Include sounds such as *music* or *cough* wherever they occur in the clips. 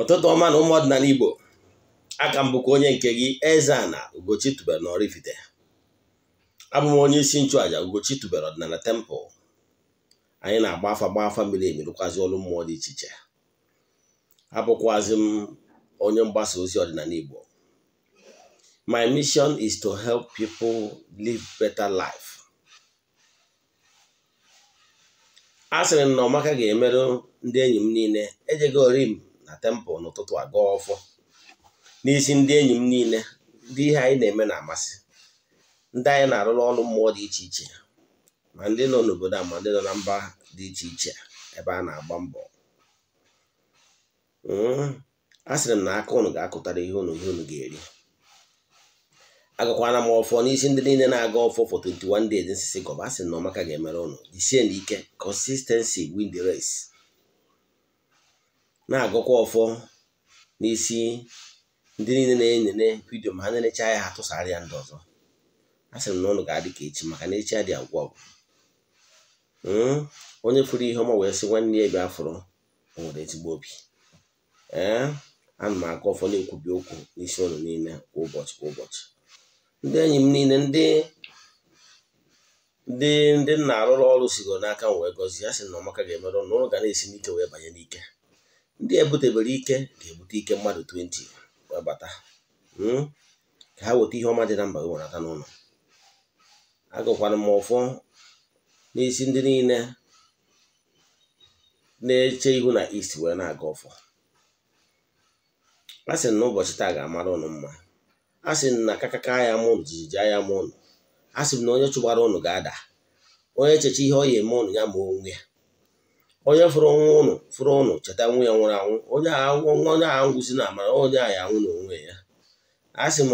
ụtụtụ ọma na ụmụọdịnala Igbo aka m bụkwa onye nke gị Eze-Ana Ugochi tubere na Oraifite abụ m onye isi nchụàja Ugochi tubere ọdịnala tempụl anyị na-agba afa gba afa mmiri emerụkwazi ọrụ mmụọ dị iche iche abụkwazi m onye mgbasa ozi ọdịnala Igbo my mission is to help people live better life a sịrị m na ọmaka ga-emerụ ndị enyi m niile ejegorim na tempụl n'ụtụtụ aga ọfọ n'isi ndị enyi m niile ndị ihe anyị na-eme na-amasị ndị anyị na-arụrụ ọrụ mmụọ dị iche iche ma ndị nọ n'obodo a ma ndị nọ na mba dị iche iche ebe a na-agba mbọ hmm, a sịrị m na aka unu ga-akụtara ihe unu ihe unu ga-eri agakwana m ọfọ n'isi ndị niile na-aga ọfọ for 21 days nsisi gọba a sị na ọmaka ga-emere ụnụ jisie n'ike consistency win the race na-agụkwa ọfọ n'isi ndị niile na-enene vidio ma ha na-erecha ya ha tụsara ya ndị ọzọ a sịrị na ụlọ ga-adị ka echi maka na echi adị agwụ agwụ hmm? onye fụrụ ihe ọma wee sị nwanne ya bịa afọrọ o nwere ezigbo obi ee ana m agụ ọfọ na-ekwubi okwu n'isi ụlọ niile kwa ụbọchị kwa ụbọchị ndị enyi m niile ndị ndị ndị nna arụrụ ọrụ sigoro n'aka m wee gọzie a sị na ọmaka ga-emerụ na ụlọ ga na-esi n'ike wee banye n'ike ndị ebutebere ike ga-ebute ike mmadụ 20 wee bata hmm? ka ha weta ihe ọma dị na mba gị werata n'ụlọ agụkwara m ụfụ n'isi ndị niile na-eche ihu na ist wee na-aga ọfọ a sị na ụbọchị taa ga-amara ụnụ mma a sị na kakaka agha ma jijiji agha ma a sị na onye chụgbara ụnụ ga-ada onye echeche ihe ọ ya eme ụnụ ya ma onwe ya onye fụrụ ọnwụ ụnụ fụrụ ụnụ cheta nwa ya nwụrụ anwụ onye ahụ ngwụzi na amara onye ahụ anwụ na onwe ya a sị m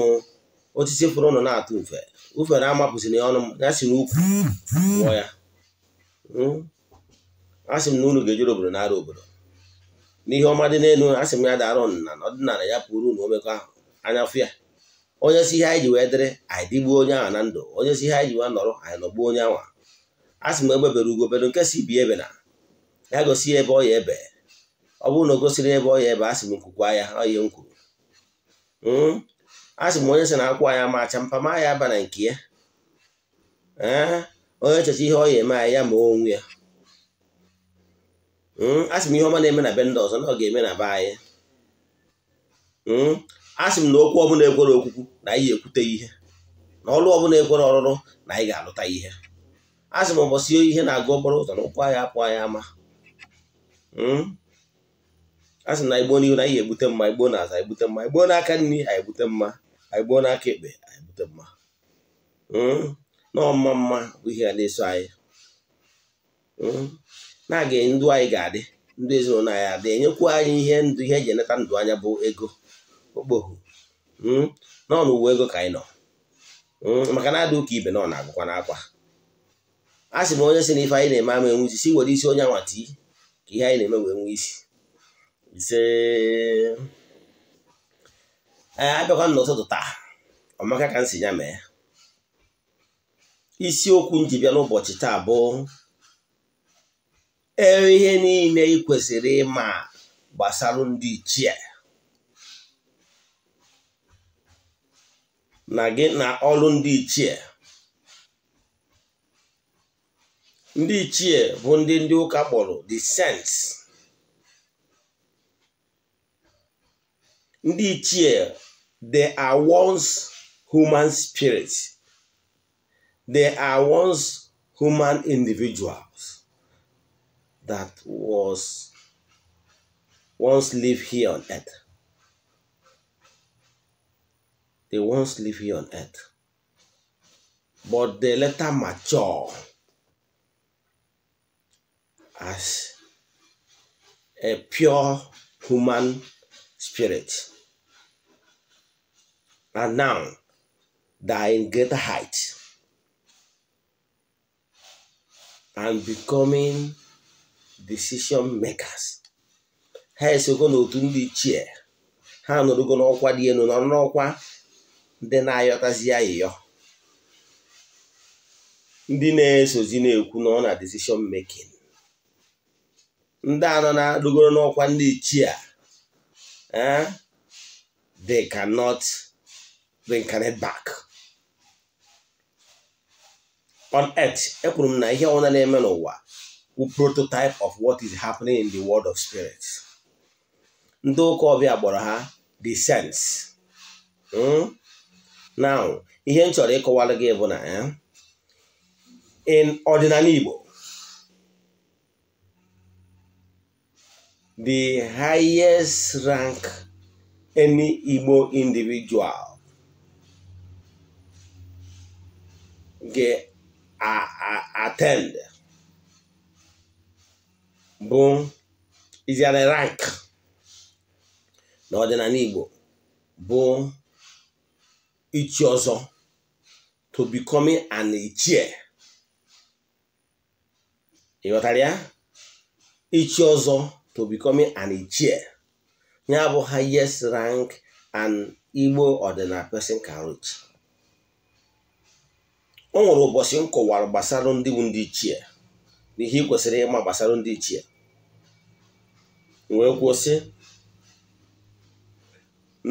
osisi fụrụ ụnụ na-atụ ufe ufere amapụziri ya ọnụ m ya si n'ukwu ya hmm? a sị m na unu ga-ejere obodo nara obodo n'ihe ọma dị n'elu a sị m ya dara ọnụna na ọdịnala ya pụrụ unu omekọ ahụ anya fụ ya onye si ihe anyị ji wee dịrị anyị dịgbuo onye ahụ na ndụ onye si ihe anyị ji wee nọrọ anyị nọgbuo onye ahụ a sị m egbebere ugo obodo nke si bi ebe na ya gosi ebe ọ ya ebe ọ bụrụ na o gosiri ebe ọ ya ebe asị m nkwukwa ya ọ ya m kwuru hmm? asị m onye sị na akwụ anya macha mpama ya aba nke ya eh? onye echecha ihe ọ ya eme ya ma onwe ya hmm? asị m ihe ọma na-eme na be ndị ọzọ na ọ ga-eme na be anyị hmm? asị m na okwu ọbụla ekwere okwukwu na anyị ekwute ihe na ọrụ ọbụla ekwere ọrụrụ na anyị ga-alụta ihe asị m ụbọchị ihe na-agụ obere ụzọ na ụkwụ ya apụ anyị ama Hmm? a sị na igbo n'ihu na ihe ebute mma igbo na-aza egbute mma igbo n'aka nri anyị egbute mma anyị gboo n'aka ekpe anyị mma hmm? na ọma mma bụ ihe a na-eso anyị hmm? na-aga ndụ anyị ga-adị ndụ ezinụlọ anyị adị enyekwu anyị ihe ndụ ihe eji eleta ndụ anya bụ ego okpohu nọ n'ụwa ego ka anyị nọ maka na adị ụka ibe nọ na-agụkwa n'akwa a sị m onye si na ife anyị na-eme ama enwuzi si were isi onye anwa tii ihe anyị na-eme wee nwee isi ise ee abịakwa n'ụtụtụ taa ọmaka ka m si ya mee isiokwu ji bịa n'ụbọchị taa bụ e, ihe niile ị kwesịrị ịma gbasara ndị ichie na gị na ọrụ ndị ichie ndị ichie bụ ndị ndị ụka kpọrọ the ndị ichie they are once human spirits they are once human individuals that was once live here on earth they once live here on earth but they later mature as a pure human spirit. And now, they are in greater height and becoming decision makers. ha esogo n'otu ndị ichie ha nọrọgo n'ọkwa dị elu nọrọ n'ọkwa ndị na-ayọtazi ya ndị na-esozi na-ekwu na ọ na decision making ndị anọ na-adụgoro n'ọkwa ndị ichie they cannot bring reincarnate back on earth ekwuru m na ihe ọbụla na-eme n'ụwa bụ prototype of what is happening in the world of spirit ndị ụka ọbịa gbọrọ ha the sense hmm? now ihe m chọrọ ịkọwara gị bụ na eh, in ọdịnala Igbo the highest rank any Igbo individual get a, a, attend bụ iziara rank n'ọdịnala Igbo bụ ichi ọzọ to becoming an ichie ịghọtara ya ọzọ to becoming an ichie ya bụ highest rank an Igbo ọdịnala person can reach o nwere ụbọchị m gbasara ndị ndị ichie na ihe ị kwesịrị ịma gbasara ndị ichie wee kwuo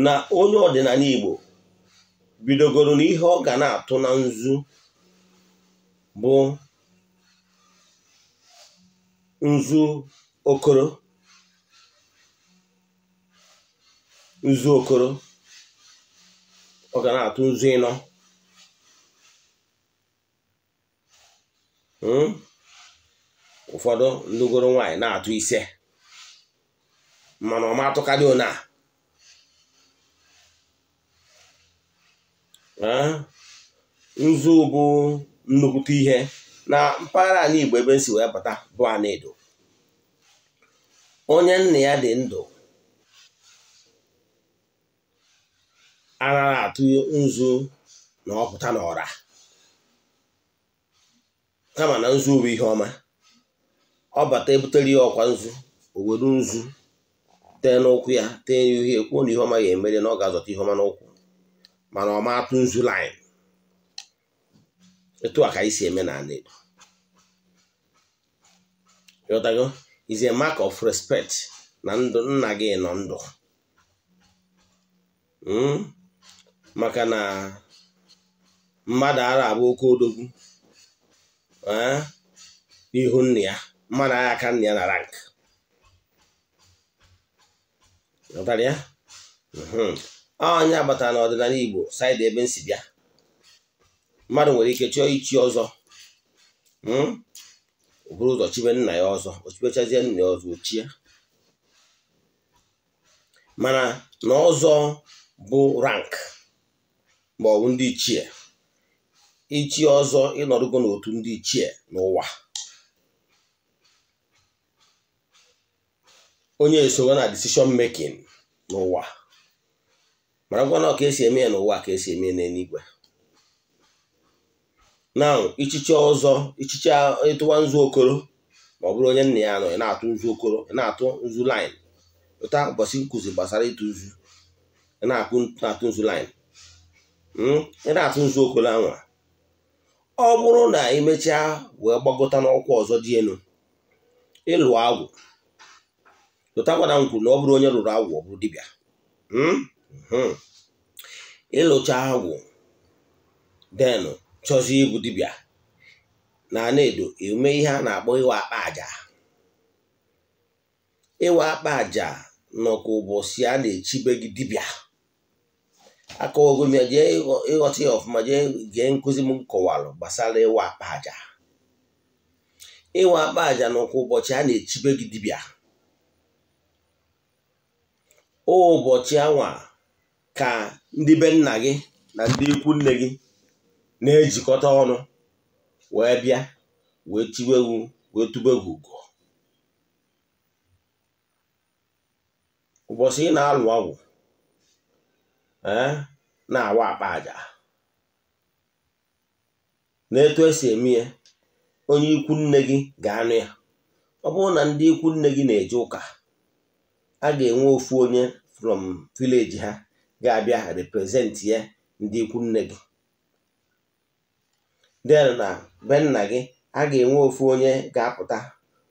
na onye ọdịnala Igbo bidogoro na ihe ọ ga na-atụ na nzu bụ nzu okoro nzu okoro ọ ga na-atụ nzu ịnọ hmm? ụfọdụ ndụgoro nwaanyị na-atụ ise mana ọma atụkarị one a nzu bụ nnukwute ihe na mpaghara anyị Igbo ebe e si wee bata bụ Anedo onye nna ya dị ndụ ara na-atụ nzu na ọpụta n'ọra kama na nzu bụ ihe ọma ọ bata ebutere ya ọkwa nzu o were nzu tee n'ụkwụ ya tee ya uhie kwuo na ihe ọma ga-emere na ọ ga-azọta ihe ọma n'ụkwụ mana ọma atụ nzu laịn etu a ka anyị si eme n'ala Igbo ịghọtago is a mark of respect na ndụ nna gị nọ ndụ hmm? maka na mmadụ ara abụ oke odogwu eh, n'ihu nna ya mmadụ agha aka nna ya na rank mhm. onye agbata na Igbo saịdị ebe m si bịa mmadụ nwere ike chọọ ichi ọzọ hmm, o ụzọ chibe nna ya ọzọ o nna ya ọzọ ochie mana na ọzọ bụ rank ma ọ bụ ndị ichie ichie ọzọ ịnọdụgo n'otu ndị ichie n'ụwa onye esonye na decision making n'ụwa mara ngwa na ka esi eme ya n'ụwa ka esi eme n'eluigwe na ichiche ọzọ ichiche ịtụwa nzu okoro ma ọ bụrụ onye nna ya nọ ị na-atụ nzu okoro ị na-atụ nzu line ụta ụbọchị nkụzi gbasara ịtụ nzu ị na-atụ nzu line Hmm? ị na-atụ nzuokolo anwa ọ bụrụ na emechaa wee gbagota n'ọkwa ọzọ dị elu ịlụ agwụ lụtakwana m kwuru na ọ bụrụ onye lụrụ agwụ ọ bụrụ dibịa hmm? hmm. ịlụcha agwụ den chọzi ibu dibịa na ana-edo eme ihe a na-akpọ ịwa akpa aja ịwa akpa aja nọka ụbọchị a na-echibe gị dibịa aka ogụm ya jee ịghọta ya ọfụma jee gee nkụzi m kọwalụ gbasara ịwa akpa aja ịwa akpa aja n'ụkwụ ụbọchị a na-echibe gị dibịa ụbọchị anwa ka ndị be nna gị na ndị ikwu nne gị na-ejikọta ọnụ wee bịa wee tiwe wee tube ugo ụbọchị na-alụ ọgwụ na-awa akpa aja na etu esi eme ya onye ikwu nne gị ga-anụ ya ọ bụrụ na ndị ikwu nne gị na-eje ụka a ga-enwe ofu onye from vileji ha ga-abịa represent ya ndị ikwu nne gị den na be nna gị a ga-enwe ofu onye ga-apụta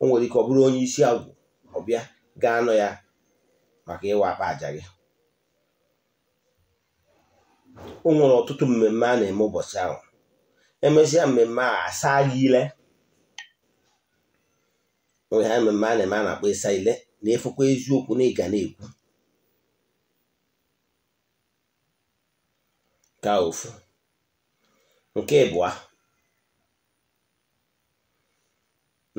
o nwere ike ọ bụrụ onye isi agwụ ọbịa ga-anọ ya maka ịwa akpa aja gị o nwere ọtụtụ mmemme a na-eme ụbọchị ahụ emesịa mmemme a asa ile onye ha mmemme a na-eme a na-akpọ ịsa ile na-efukwa eziokwu na ịga na-ekwu ka ofu nke ịbụa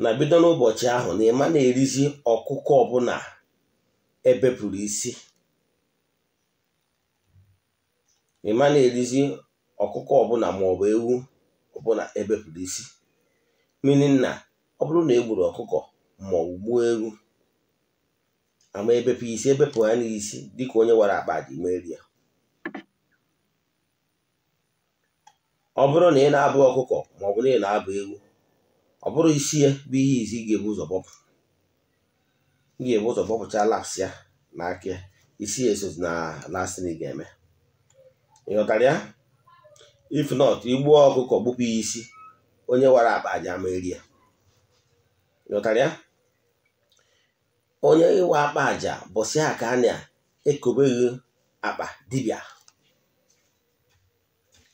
na bido n'ụbọchị ahụ na ịma na-erizi ọkụkọ ọbụla ebepụrụ isi ịma na-erizi ọkụkọ ọbụla maọbụ ewu ọbụla ebepụrụ isi mmiri nna ọ bụrụ na egburu ọkụkọ maọbụ gbuo ewu ama ebepụ isi ebepụ ha n'isi dịka onye wara akpa ji meri ya ọ bụrụ na ị na-abụ ọkụkọ maọbụ na ị na-abụ ewu ọ bụrụ isi ya bụ ihe izi ị ga-ebu ụzọ bọpụ ga-ebu ụzọ bọpụcha laps ya na aka ya isi esozi na lastịn ị ga-eme ịghọtara if not igbuo ọkụkọ gbupụ ya isi onye wara akpa aja meri ya ịghọtara onye ịwa akpa aja bụsị ha ka a na-ekobeghị akpa dibịa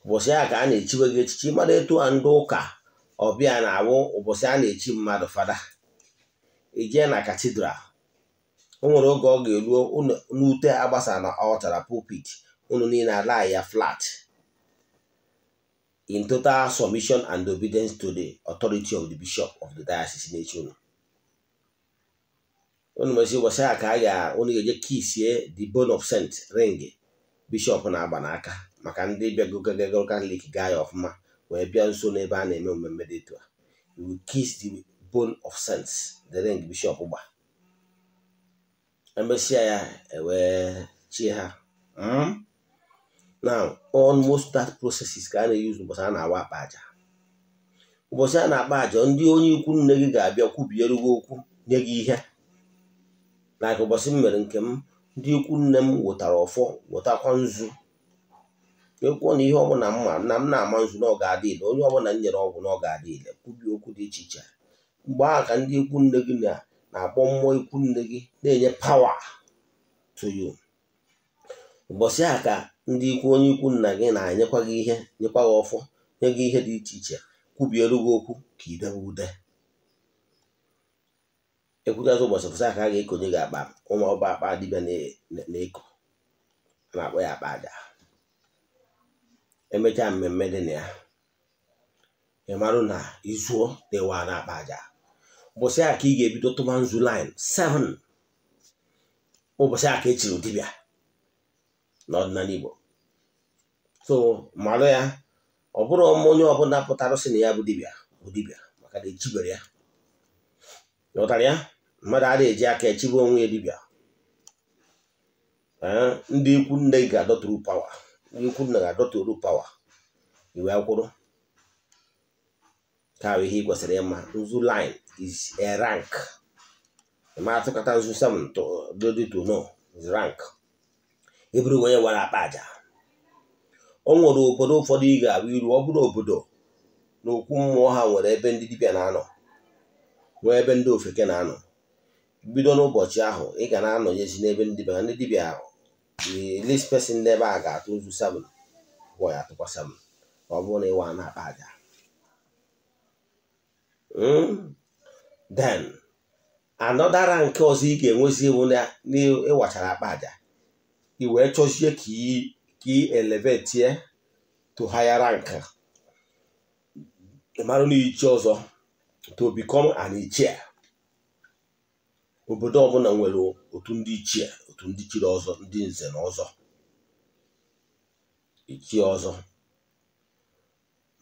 ụbọchị a ka a na echiweghị gị echichi mmadụ etu a ndị ụka ọbịa na-awụ ụbọchị a na-echi mmadụ fada ijee na katidral o nwere oge ọ ga-eruo n'ute agbasa na ọ chara pulpit unu niile ala ya flat in total submission and obedience to the authority of the bishop of the diocese na-echi unu unu mezi ụbọchị a ka a ga unu ga-eje kisie the bone of saint ring bishop na-agba n'aka maka ndị bịagogo katọlik gaa ya ọfụma wee bịa nso n'ebe a na-eme mmemme dị etu a you kiss the bone of saints the ring bishop gba emesịa ya ewee chi ha hmm? now almost that processes ka a na eyuzi ụbọchị a na-awa akpa aja ụbọchị a na-akpa aja ndị onye ikwu nne gị ga-abịa kwubiere gị okwu nye gị ihe na ka ụbọchị m mere nke m ndị ikwu nne m wetara ọfọ wetakwa nzu ekwuo na ihe ọbụla m ma na m na-ama nzu na ọ ga onye ọbụla m nyere ọgwụ na ọ ga-adị kwubi okwu dị iche iche mgbe ahụ ka ndị ikwu nne gị na-akpọ mmụọ ikwu nne gị na-enye pawa to ụbọchị a ka ndị ikwu onye ikwu nna gị na-enyekwa gị ihe nyekwa gị ọfọ nye gị ihe dị iche iche kwubielu gị okwu ka idebe ude ekwuchazi ụbọchị pụsa aka a ga-ekonye gị akpa ụmụ ọba akpa dibịa na-eko na-akpọ ya akpa aja emechaa mmemme dị na ya ị marụ na izuo na na akpa aja ụbọchị aka ị ga-ebido tụba nzu lin 7 ụbọchị aka ka e chiri dibịa n'ọdịnala Igbo so malụ ya ọ bụrụ onye ọbụla pụtara sị na ya bụ dibịa bụ dibịa maka na ejibere ya ghọtara ya mmadụ adịghị eji aka echibe onwe ya dibịa ndị ikwu nne ga-adọtụrụ pawa ndị ikwu nna ga-adọtụrụ pawa iwe akwụrụ ka ihe ị kwesịrị ịma nzu line is a rank ma atụkọta nzu sam to do to know is rank eburu onye nwere akpa aja o nwere obodo ụfọdụ ị ga-abụ iru ọ bụrụ obodo na okwu mmụọ ha nwere ebe ndị dibịa na-anọ nwee ebe ndị ofeke na-anọ bido n'ụbọchị ahụ ị ga na-anọnyezi n'ebe ndị dibịa ndị dibịa ahụ list person n'ebe a ga-atụ ozu sabụl gwọ ya atụkwa sabụl ọ bụrụ na ịwa na-akpa aja hmm? then anọdara nke ọzọ ị ga-enwezi ewu na ịwachara akpa aja ị wee chọzie ka iyi ki elevate ye to higher rank mara n'ichi ọzọ to become an ichie obodo ọbụla nwere otu ndị ichie otu ndị chiri ọzọ ndị nze na ọzọ ichie ọzọ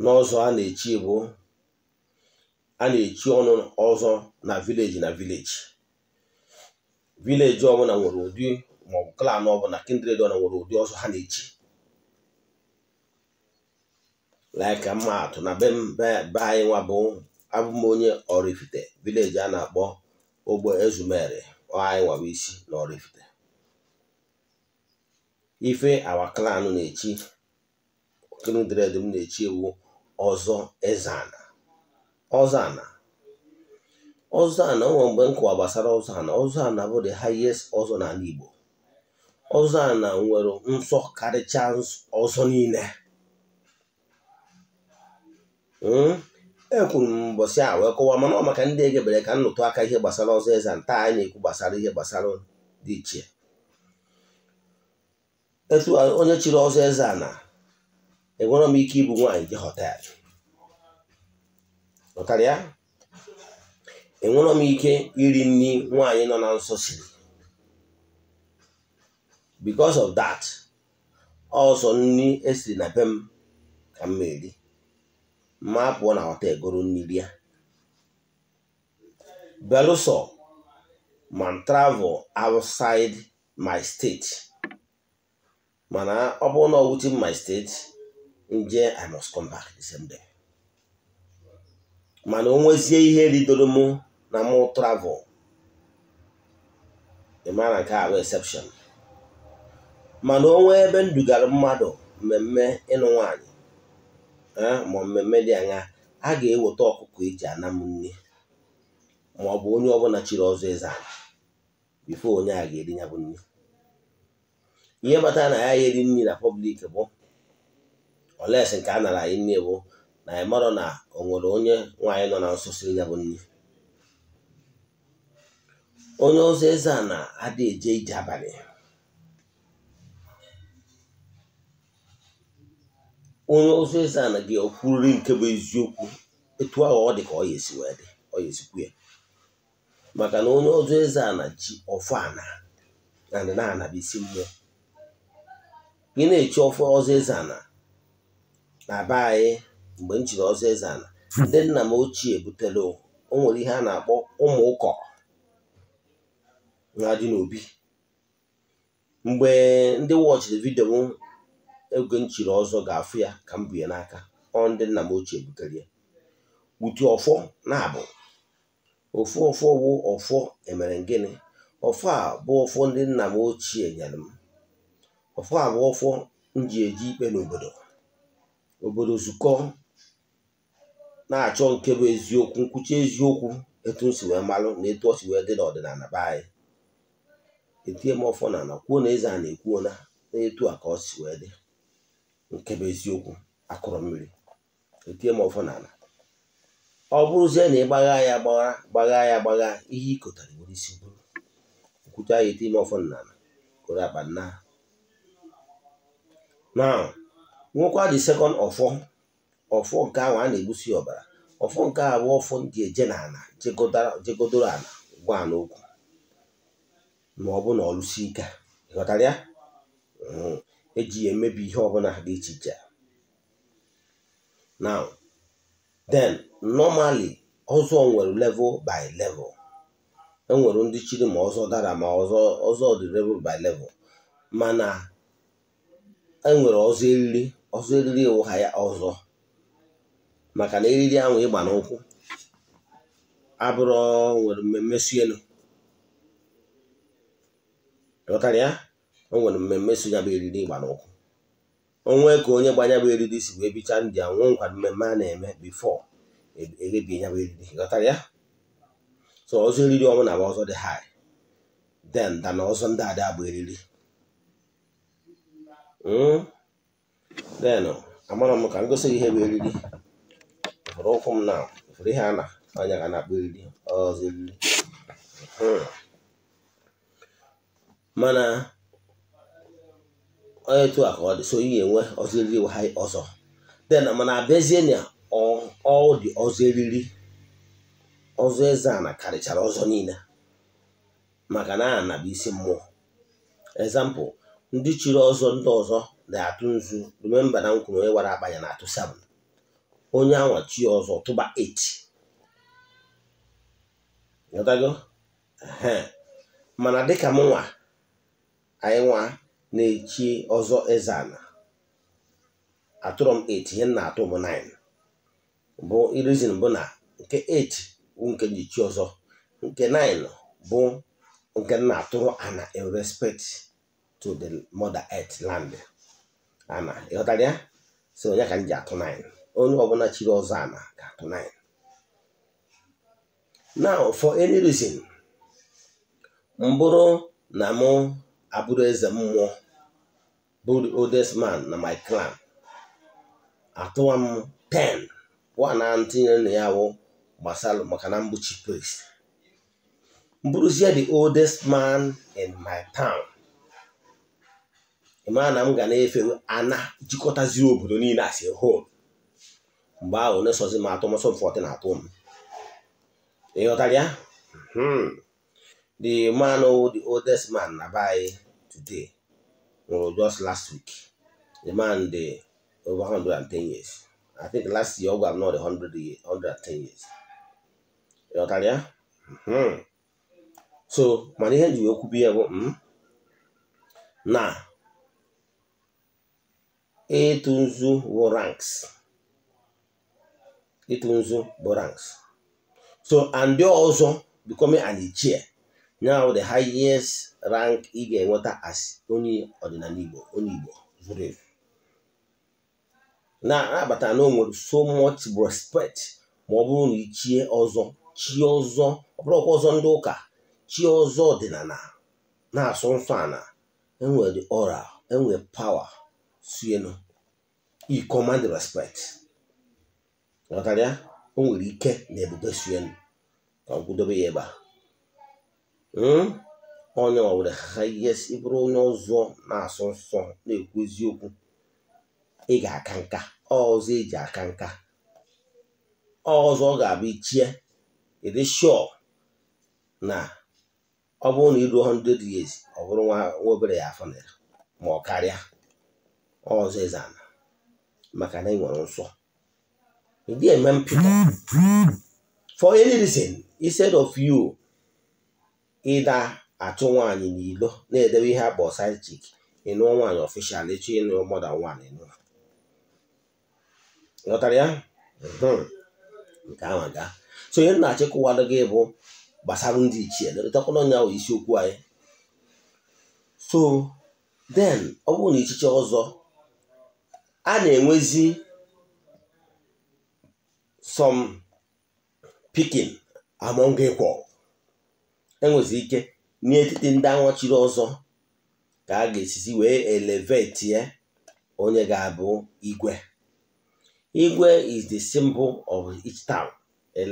n'ọzọ a na-echi bụ a na-echi ọnụ ọzọ na vileji na vileji vileji ọbụla nwere ụdị maọbụ klan ọbụla kindred ọna nwere ụdị ọzọ ha na-echi laika mma atụ na be anyị nwa bụ abụm onye Oraifite vileji a na-akpọ ogbe ezumere anyị nwa isi na Oraifite ife awa klan na-echi kindred m na-echi ewu ọzọ ezana ọzana ọzana o nwere mgbe gbasara kụwa gbasara ọzọ ana bụ the highest ọzọ n'ala Igbo ọzọ a na nwere nsọ karịcha ọzọ niile hmm? ekwuru m mbọsị a wee kọwaa mana ọ maka ndị egebere ka nnụtụ aka ihe gbasara ọzọ eze ntaa anyị na-ekwu gbasara ihe gbasara dị iche etu onye chiri ọzọ eze a na enwere m ike ịbụ nwaanyị nke họtelụ ọkarịa enwere m ike iri nri nwaanyị nọ na nsọ siri because of that ọsọ nri esiri na be m ka m eri ma pụọ na ọta egoro mmiri ya belụsọ ma travel outside my state mana ọ bụrụ na ọ my state nje I must come back the mana o nwezie ihe ridoro mụ na mụ travel ị nke a exception mana onwe ebe m dugara mmadụ mmemme ịnụ nwaanyị ma mmemme dị anya a ga-eweta ọkụkọ eji anam nne ma ọ bụ onye ọbụla chiri ọzọ eze ala bifo onye a ga-eri ya bụ nri ihe bata na ya eri nri na pọblik bụ oles nke a nara anyị nne bụ na anyị mara na o nwere onye nwaanyị nọ na nso siri ya bụ nri onye ọzọ eze a na-adị eje ije abalị onye ọzọ eze ana gị o nke bụ eziokwu etu ahụ ọ dị ka ọ esi wee dị ọ esikwu ya maka na onye ọzọ eze na ji ọfọ ana na na-anabisi mmụọ gị na-echi ọfọ ọzọ eze ana na be anyị mgbe m chiri ọzọ eze ana ndị nna m ochie butere o nwere ihe a na-akpọ ụmụ ụkọ na n'obi mgbe ndị wọchiri vidio oge nchiri ọzọ ga-afụ ya ka m bụ ya n'aka ọ ndị nna m ochie butere ya utu ọfọ na-abụ ofu ọfọ wụ ọfọ emere gịnị ọfọ a bụ ọfọ ndị nna m ochie nyere m ọfọ a bụ ọfọ m ji eji ikpe n'obodo obodo zukọ na-achọ nke bụ eziokwu nkwuchi eziokwu etu m si wee malụ na etu ọ si wee dị n'ọdịnala be anyị etinye m ọfọ na kwuo na eze a na-ekwuo na etu a ka ọ si wee dị nke bụ eziokwu akụrụ mmiri etinye m ọfọ n'ala ọ bụrụzie na ị gbagha ya gbagha gbagha ya gbagha ihe ị ịkọtara nwere isi bụrụ kwucha ya etie m ọfọ n'ala kụrụ akpa nna ha now nwekwa dị sekọnd ọfọ ọfọ nke ahụ a na-egbusi ọbara ọfọ nke a bụ ọfọ ndị eje n'ala jegodoro ala gwa n'okwu ma ọ bụ na ọlụsi ike ghọtara ya hmm. eji ya emebi ihe ọbụla dị iche a now then normally ọzọ nwere level by level enwere ndị chiri ma ọzọ dara ma ọzọ ọzọ dị level by level mana enwere ọzọ eriri ọzọ eriri ụha ya ọzọ maka na eriri ahụ ịgba n'ụkwụ abụrụ nwere mmemme si o nwere mmemme so ya bụ eriri ịgba n'ọkụ onwe ka onye gbanya bụ eriri si wee bichaa ndị a nwee nkwa mmemme a na-eme bifọ eghebie e ya bụ eriri ghọtara ya so ọzọ eriri ọnwụ na ọzọ dị ha den da na ọzọ ndị ada bụ eriri den hmm? amara m ka m gosi gị ihe bụ eriri fụrụ ụkwụ m na ụfọdụ ihe a na anya ga na-akpọ eriri ọzọ eriri hmm. mana onye etu a ka ọ dị so ị ga-enwe ọzọ eriri ha ọzọ den mana abịazie na ọ dị ọzọ eriri ọzọ eze ana karịchara ọzọ niile maka na ana bụ isi mmụọ example ndị chiri ọzọ ndị ọzọ na-atụ nzu remember na nkwuru onye wara akpa na-atụ 7 onye anwa chi ọzọ tụba 8 mana dịka m nwa anyị nwa na-echi ọzọ ezana atụrụ m 8 ihe m na-atụ bụ 9 bụ irizin bụ na nke 8 bụ nke m ji ọzọ nke 9 bụ nke m na-atụrụ ana in respect to the mother earth land ana ịghọtara ya si onye ka m ji atụ 9 onye ọbụla chiri ọzọ ana ga-atụ 9 now for any reason mbụrụ na mụ abụrụ eze mmụọ bụ the oldest man na my clan atụwa m 10 one a tinyere na ya wụ gbasara maka na mgbochi priest mbụrụzie the oldest man in my town ịmara na m ga na-efe ana jikọtaziri obodo niile as a mgbe ahụ na-esozi m atụ mọsọ mfọtị na atụ m ịghọtara ya hmm. the man the oldest man na be today well, just last week. The man the over 110 years. I think last year we not 100 110 years. You know Talia? Mm-hmm. So mana ihe ji wee kwubi ya bụ na ịtụ nzu bụ ranks ịtụ nzu bụ ranks so and the ọzọ becoming an ichie now the highest rank ị ga-enweta as onye ọdịnala Igbo onye Igbo zuru ezu na-abata na o nwere so much respect ma ọ bụrụ na ichie ọzọ chi ọzọ ọ bụrụkwa ọzọ ndị ụka chi ọzọ ọdịnala na-asụ nsọ ana enwere ọra enwere pawa sienu i command respect ghọtara ya o nwere ike na ebube sienu ka m kwudobe ya ebe a hmm? ọla owere hayes ịbụrụ e onye ọzọ na-asọ nsọ na-ekwu eziokwu ị ga-aka nka ọzọ eji aka nka ọzọ ọ ga-abụ ichie ịdị shọ na ọ bụrụ na iruo 100 years ọ bụrụ nwa obere ya afọ nara ma ọ karịa ọzọ ana maka na ị nwere nsọ ịdị eme mpịkọ for any reason instead of you ịda atụ nwaanyị n'ilo na-edebe ihe akpọ side chick ịnụọ nwaanyị ọfishal echi ịnụ mọda nwaanyị nụọ ghọtara ya hmm. nke ahụ gaa so onye na-achịkọwalụ gị bụ gbasara ndị ichie letakwana nya bụ isiokwu anyị so den ọ bụrụ na ichiche ọzọ a na-enwezi some picking among equal enwezi ike n'etiti ndị anwụchiri ọzọ ka a ga-esizi wee elevate onye ga-abụ igwe igwe is the symbol of each town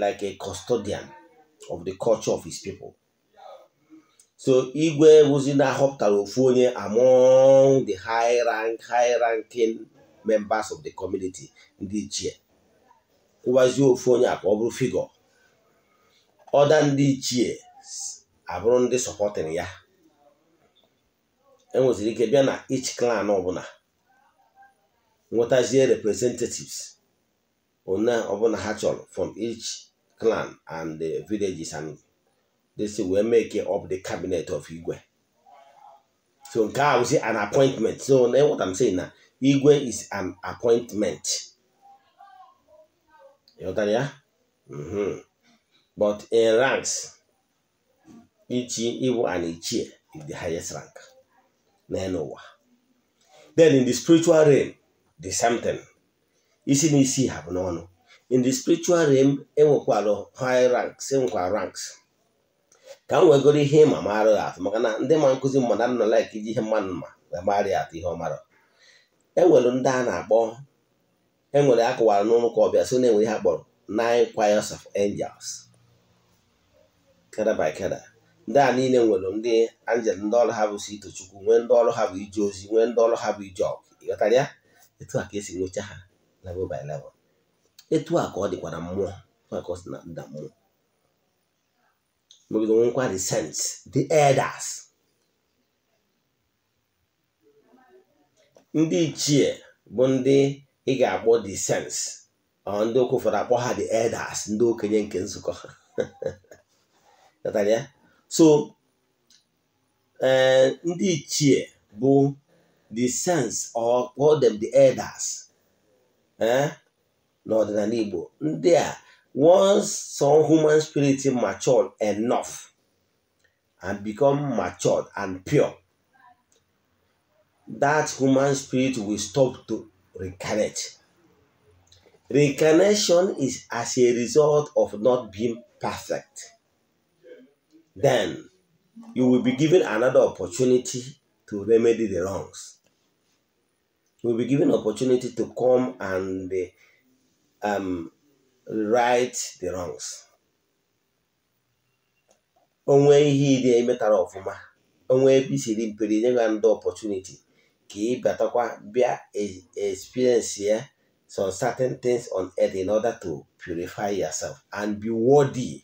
like a custodian of the culture of his people so igwe wụzi na-ahọpụtara ofu onye among the high rank high ranking members of the community ndị ichie kwụwazie ofu onye a ka ọ bụrụ ọda ndị ichie abụrụ ndị sọpọtịrị ya enweziri ike bịa na each clan ọbụla nwetazie representatives one ọbụla ha chọrọ from each clan and the villages and this wee make up the cabinet of igwe so nke a wụzi an appointment so what I'm saying na igwe is an appointment ịghọtara ya mm-hmm. but in ranks ichi ịbụ an ichie is the highest rank n'elu ụwa then in the spiritual realm the same thing isi na isi ha bụ n'ọnụ in the spiritual realm enwekwara high ranks enwekwara ranks ka m wegoro ihe ịma maara atụ maka na ndị ma nkụzi mmadụ nọ laik iji ihe mmadụ ma wee mara ya atụ ihe ọ mara enwere ndị a na-akpọ enwere akụwara n'ụlọ ụka ọbịa so na-enwere ihe akpọrọ nine choirs of angels keda by keda ndị a niile nwere ndị anjel ndị ọrụ ha bụ si itochukwu nwee ndị ọrụ ha bụ ije ozi nwee ndị ọrụ ha bụ ije ọgụ ịghọtara ya etu a ka esi nwecha ha level by level etu a ka ọ dịkwa na mmụọ etu ka ọ si na nda mmụọ megide nwekwa the saints the elders ndị ichie bụ ndị ị ga-akpọ the saints ndị okwu ụfọdụ akpọ ha the elders ndị okenye nke nzukọ ha *laughs* so eh, ndị ichie bụ the sense or call them the elders eh, n'ọdịnala Igbo ndị a once some human spirit matured enough and become matured and pure that human spirit will stop to reincarnate reincarnation is as a result of not being perfect then you will be given another opportunity to remedy the wrongs. You will be given opportunity to come and uh, um, right the wrongs. onwe ihe ịdị emetara ọfụma onwe ebe isiri nye ya ndị opportunity ka ị bịatakwa bịa experience some certain things on earth in order to purify yourself and be worthy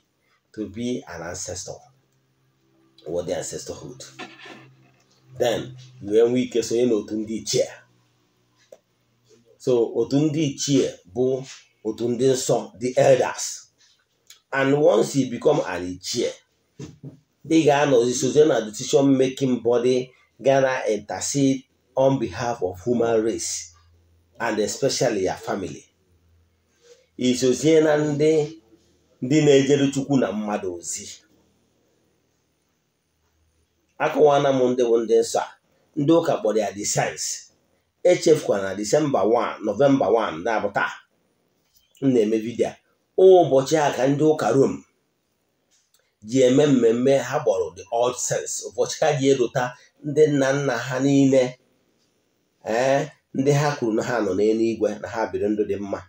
to be an ancestor. wọ their sisterhood then nwee ike sonye n'otu ndị ichie so otu ndị ichie bụ otu ndị nsọ the elders and once you become an ichie ị ga-anọzi sozie na decision making body gana intercede on behalf of human race and especially your family isozie na ndị ndị na-ejere chukwu na mmadụ ozi akọwana m ndị bụ ndị nsọ ndị ụka kpọrọ ya the science echefukwana na disemba 1 nọvemba 1 na-abụ taa m na-eme vidio ụbọchị a ka ndị ụka rom ji eme mmemme ha gbọrọ the old sense ụbọchị ha ji erota ndị nna nna ha niile ee eh, ndị ha kwuru na ha nọ n'eluigwe na ha biri ndụ dị mma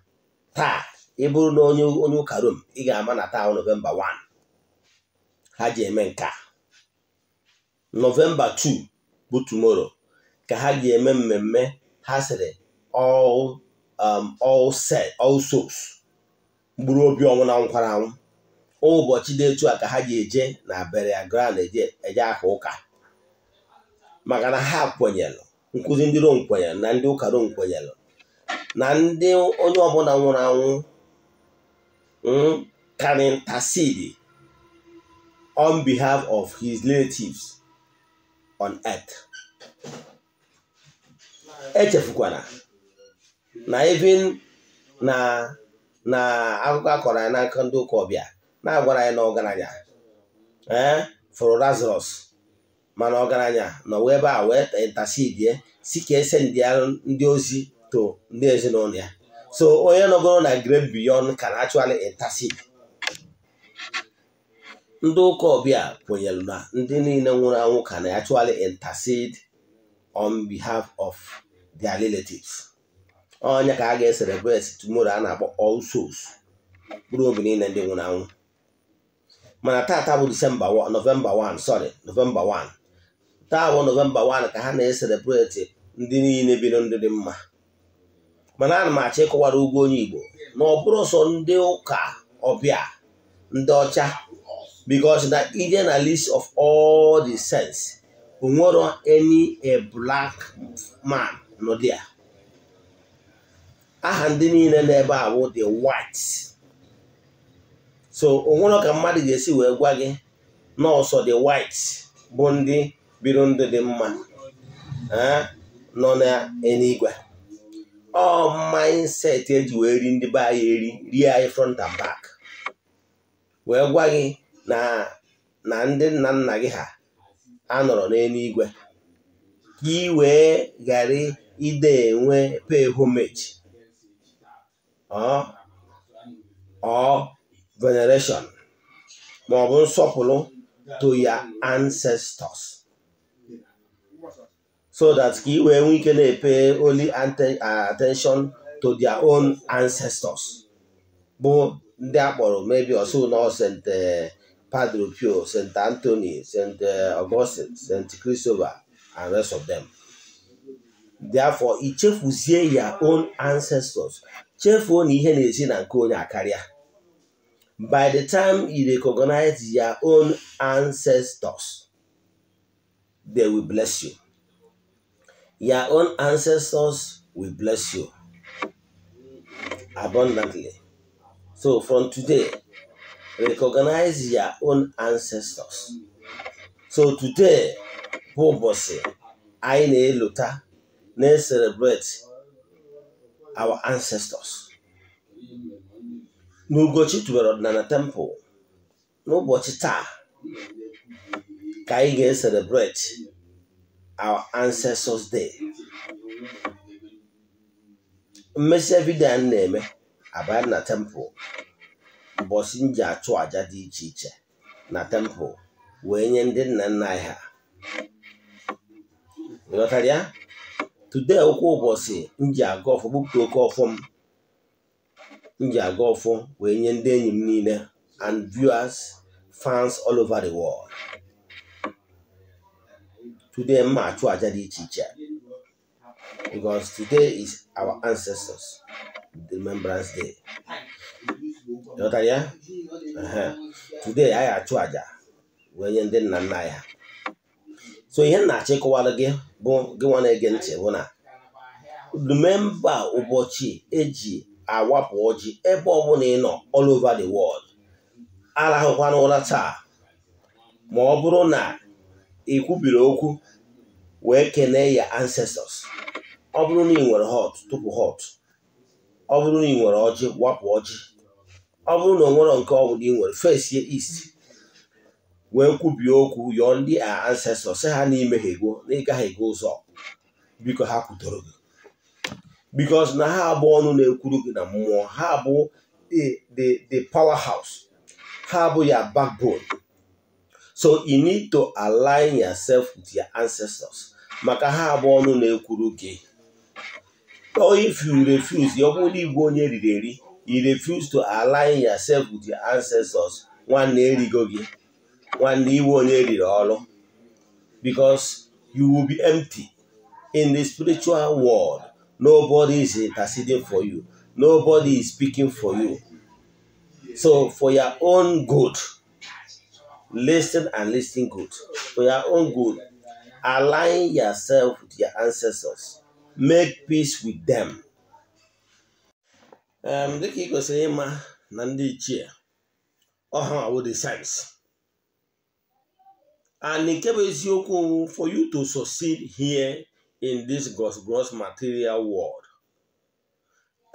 taa ị na onye ụka rom ị ga-ama na taa nọvemba 1 ha ji eme nke a nọvemba 2 bụ tomorrow ka ha ga-eme mmemme ha sịrị all um obi ọnwụ na nkwara anwụ ụbọchị dị etu a ka ha ga-eje na Beria Ground eje aha ụka maka na ha kwenyelụ nkụzi ndị Rom kwenyelụ na ndị ụka Rom kwenyelụ na ndị onye ọbụla nwụrụ anwụ mm, karintasidi on behalf of his relatives on earth echefukwana na even na na akụkọ akọrọ anyị n'aka ndị ụka ọbịa na-agwara anyị na ọgaranya ee eh, fụrụ mana ọgaranya nọ wee ebe a wee si ka ese ndị ozi to ndị ezinụlọ ya so onye nọgoro na grave beyond can actually ndị ụka ọbịa kwenyere na ndị niile nwụrụ anwụ ka na actually intercede on behalf of their relatives onye ka a ga-eselebreti tomorrow a na-akpọ All mkpụrụ obi niile ndị nwụrụ anwụ mana taata bụ disemba novemba 1 sorry novemba 1 taa bụ novemba 1 ka ha na-eselebreti ndị niile biri ndị dị mma mana ana m achọ ịkọwara ugwu onye Igbo na ọ bụrụ sọ ndị ụka ọbịa ndị ọcha because na Indian at least of all the sense onwero any a black man no there aha ndị niile na a bụ the white so onwere ka mmadụ ga-esi wee gwa gị nọọsọ the white bụ ndị biri ndụ dị mma eh, nọ n'eluigwe ọ mindset eji wee ri ndị be anyị eri rie anyị front and back wee gwa gị na na ndị nna nna gị ha anọrọ n'eluigwe ka ị wee ghara ide enwe pay homage ọ veneration ma ọ bụ nsọpụrụ to ya ancestors so that ka ị wee nwee ike na-epe only attention to their own ancestors bụ ndị akpọrọ maybe osu na osente Padre Pio, St. Anthony, St. Eh, Augustine, St. Christopher, and rest of them. Therefore, i chefuzie your own ancestors. Chefuo na ihe na-esi na nke onye akarịa. By the time you recognize your own ancestors, they will bless you. Your own ancestors will bless you abundantly. So from today, recognize your own ancestors so today bụ ụbọchị anyị na eluta na-celebrate our ancestors n'ugochi tubere ọdịnala temple n'ụbọchị taa ka anyị ga-celebrate our ancestors day mmesi vidio na-eme abanye na temple ụbọchị m ji achụ àjà dị iche iche na tempụ wee nye ndị nna nna anyị ha ịghọtara ya tude ụkwụ ụbọchị m ji aga ọfọ gbupụta oke ọfọ m m ji aga ọfọ wee nye ndị enyi m niile and viewers fans all over the world today mma achụ àjà dị iche iche because today is our ancestors remembrance day ya today anyị achụ aja wee nye ndị nna nna ya so ihe nna na-achọ ịkọwara gị bụ gị nwa na-ege ntị bụ na rememba ụbọchị eji awapụ ọjị ebe ọbụla ị nọ all over the world arahụkwana ụra taa ma ọ bụrụ na ị kwubiri okwu wee kenee ya ancestors ọ bụrụ na ị nwere hot tupu hot ọ bụrụ na ị nwere ọjị wapụ ọjị ọ bụrụ na ọ nke ọ bụla ị nwere first ye east wee kwubie okwu yọọ ndị a ancestors sị ha n'ime ha ego na ịgaghị ego ụzọ biko ha kwutoro gị bikos na ha abụ ọnụ na-ekwuru gị na mmụọ ha abụ the powerhouse ha abụ ya backbone so you need to align yourself with your ancestors maka ha abụ ọnụ na-ekwuru gị if you refuse ọ bụrụ na igwe onye eriri eri you refuse to align yourself with your ancestors nwanne erigo gị nwanne iwe onye eriri ọrụ because you will be empty in the spiritual world nobody is interceding for you nobody is speaking for you so for your own good listen and listen good for your own good align yourself with your ancestors make peace with them dịka ị kwesịrị ịma na ndị ichie ọha awụ the and nke bụ eziokwu for you to succeed here in this gross material world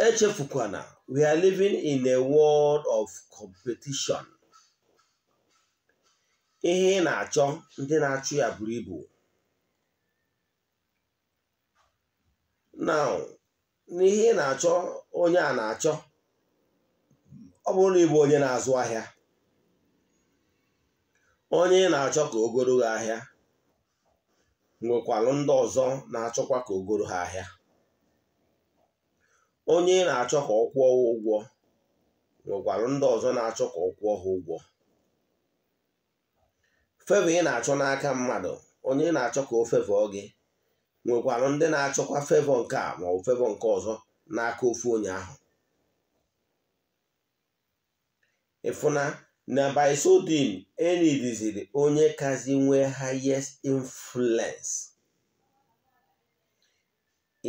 echefukwana we are living in a world of competition ihe ị na-achọ ndị na-achụ ya buru ibu now n'ihe ị na-achọ onye a na-achọ ọ bụrụ na ịbụ onye na-azụ ahịa onye ị na-achọ ka o goro gị ahịa nwekwara ndị ọzọ na-achọkwa ka o goro ha ahịa onye ị na-achọ ka ọ kwụọ ha ụgwọ nwekwarụ ndị ọzọ na-achọ ka ọ kwụọ ha ụgwọ fevọ ị na-achọ n'aka mmadụ onye ị na-achọ ka o fevọ gị nwekwara ndị na-achọkwa fevọ nke a maọbụ fevọ nke ọzọ n'aka ofu onye ahụ ịfụna na bisodin enidiziri onye kazi nwee highest influence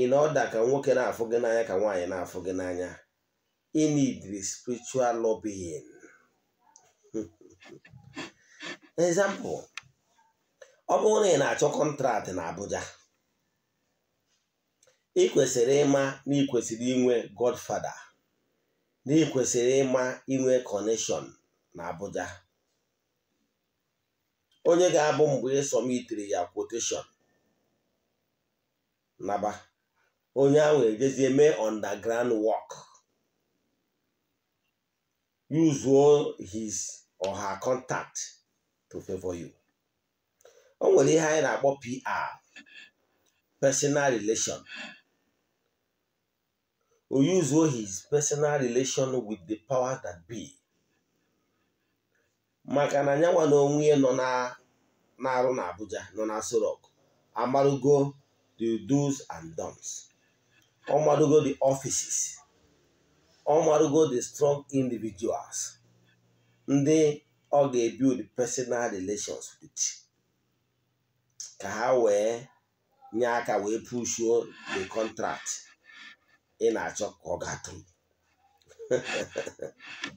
ị na ka nwoke na-afụ gị n'anya ka nwanyị na-afụ gị n'anya inidiri spiritual lobbying *laughs* example ọ bụrụ na ị na-achọ kọntrat na Abuja ị kwesịrị ịma na ị kwesịrị inwe godfada na ị ịma inwe kọneshọn na Abuja onye ga-abụ mgbe ịsọmitiri ya kwoteshọn naba onye ahụ ejezie mee underground work use his or her contact to favor you. o nwere ihe anyị na-akpọ PR personal relation o uzuo his personal relation with the power that be maka na nyanwa na onwe nọ na-arụ na Abuja nọ na Sorok Rock amarugo the do's and don'ts ọmarugo the offices ọmarugo the strong individuals ndị ọ ga-ebuild personal relations with ka ha wee nye aka wee pushuo the contract ị na-achọ ka ọ ga-atụ